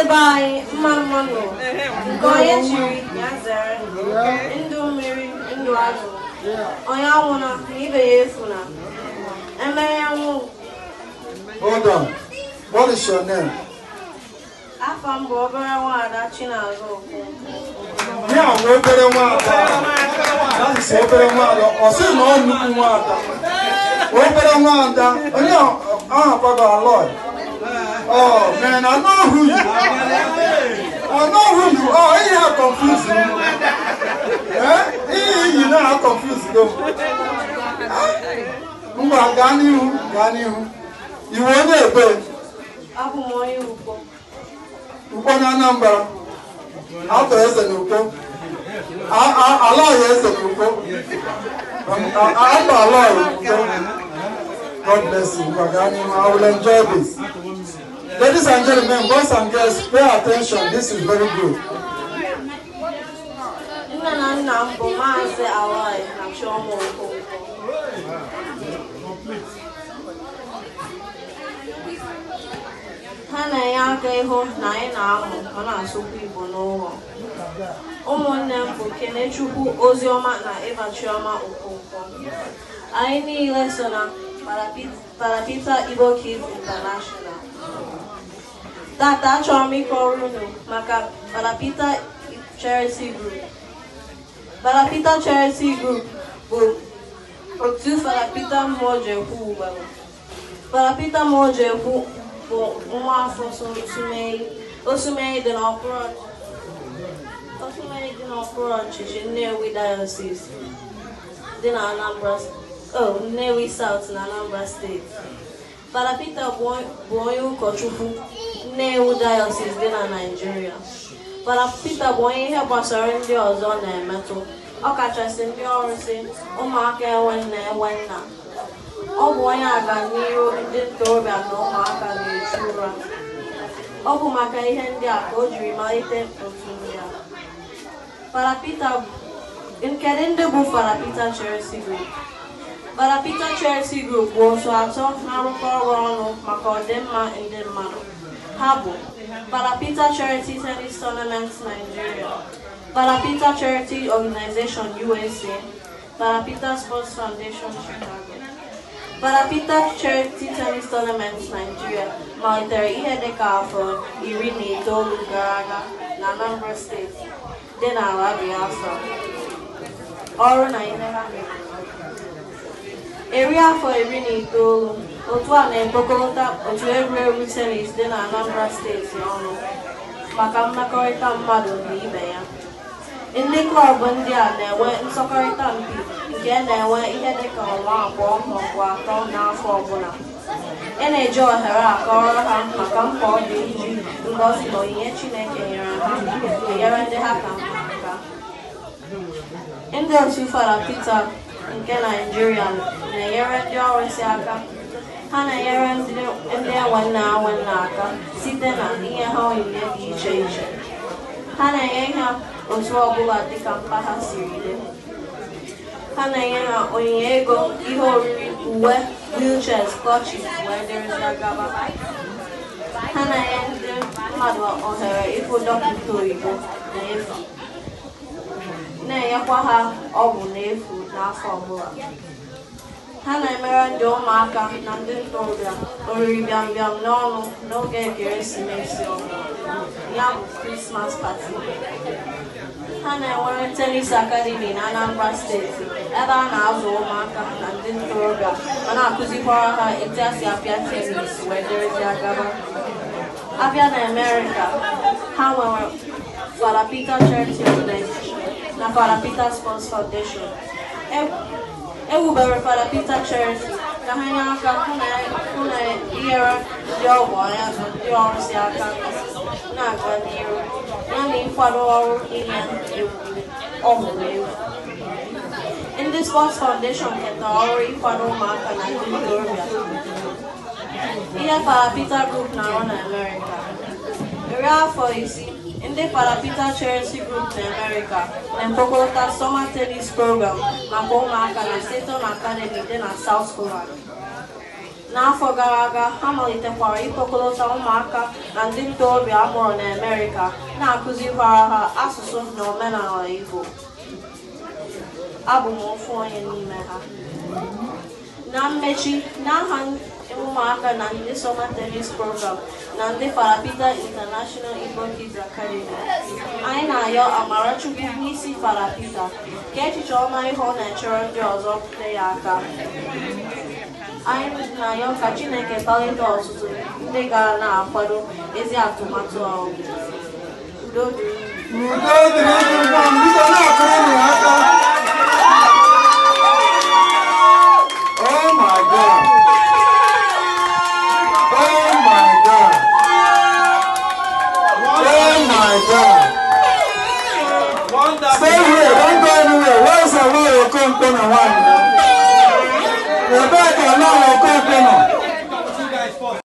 n'ebe anyị mma mma nọ nke onye chiri ya zere ndụ mmiri ndụ azụ onye anwụna na ibe ya efuna emere nwụ Hold on. What is your name? Afa m bụ obere nwaada Chinazụ Okwu. Ya bụ obere nwaada. That is obere nwaada. Ọ sị na ọ nnukwu nwaada. Obere nwaada. Onye ahụ akwago alọị. Oh man, I know who you are. I know who you are. You have confused me. Eh? You know how confused you are. Ngwa n'ihu ga n'ihu. Iwe onye ebe. Abụ na Anambra. Atọ eze na Ukpo. Ala ọhịa eze na Ukpo. Um, ala n'ihu. I will enjoy this. Ladies and gentlemen, boys and girls, pay attention. This is very good. ha na ya aka ịhụ na anyi na Parapita Kids International Tata Chomi Koruno maka Balapita Charity Group. Balapita Charity Group bụ otu Balapita Mojekwu gbara. Balapita Mojekwu bụ nwa afọ Osumei dị n'okpuru ọchịchị Nnewi Diocese dị na Anambra oh, Nnewi South na Anambra state. Balapita boyo onye ewu Diocese dị na Naịjirịa Fada bụ onye ihe gbasara ndị ọzọ na-emetụ ọkachasị ndị ọrụsị ụmụaka enwe nna enwe nna ọ bụ onye n'ihu ndị ntorobịa na ụmụaka na-echu ụra ọ bụ maka ihe ndị a ka o jiri malite otu ya fara Peter Kedu ndị bụ Group fara Peter Group bụ otu atọ na-arụkọ ọrụ ọnụ maka ọdịmma ndị mmadụ Habo, Balapita Charity Tennis Tournament Nigeria, Parapita Charity Organization USA, Parapita Sports Foundation Chicago, Parapita Charity Tennis Tournament Nigeria, Monetary Ihedeka for Irini Dolu Garaga, Nanambra State, Denawa Biafra, Ọrụ na Ihedeka Area for Irini Dolu otu a na-ekpokọta otu egwuregwu tenis dị na Anambra steeti ọnụ maka mmekọrịta mmadụ na ibe ya ndị klọb ndị a na-enwe nsọkọrịta mpi nke na-enwe ihe dịka ọnwa abụọ maọbụ atọ n'afọ ọbụla ị na-eji ohere akọrọ ha maka mkpa ọ dị iji ngozi na onyinye Chineke nyere ha enyere ndị ha ka mma aka ndị otu Fada Peter nke Naịjirịa na-enyere ndị ọrụsị aka ha na-enyere ndị nwanne ha nwanne aka site na ihe ha onyinye dị iche iche ha na-enye ha otu ọbụla dịka mkpa ha siri dị ha na-enye ha onyinye ego ihe oriri uwe wheelchairs kọchịs wee dịrịzịa gaba ha na-enye ndị mmadụ ohere ịfụ dọkịta oyibo n'efu na-enyekwa ha ọgwụ n'efu n'afọ ọbụla ha na-emere ndị ụmụaka na ndị ntorobịa oriri bịambịam n'ọnụ n'oge ekeresimesi ya bụ krismas pati ha na-enwere tenis akademi na anambra steeti ebe a na-azụ ụmụaka na ndị ntorobịa ma na-akụzikwara ha etu esi apịa tenis wee dịrịzi agaba abịa na amerịka ha nwere Fada Peter Charity na Fada Peter Sports Foundation e ewubewara Peter Cherry ka ha nye aka hụ na inyere ndị ọgwụ ya si aka na Foundation ketara ọrụ ịkwado ụmụaka na ndị ntorobịa ihe kpara Group na-arụ na ndị Parapita Charity Group n'Amerịka na-ekpokọta summer tennis program maka ụmụaka na Seton Academy dị na South Holland. N'afọ gara aga ha malitekwara ịkpọkọta ụmụaka na ndị ntorobịa amụrụ n'Amerịka na-akụzikwara ha asụsụ na omenala Igbo abụ m onye n'ime ha na mmechi ụmụaka na ndị soma tenis Program na ndị Farapita International Igbo Kids Academy. Anyị na-ayọ Amarachukwu n'isi Farapita ka echiche ọma ịhụ na-echere ndị ọzọ pụta ya aka anyị na-ayọ ka Chineke kpalite ọtụtụ ndị gara na-akwado ezi atụmatụ a udo dịrị Stay here, don't go anywhere. Where's the way you're going to one? Rebecca, now you're going to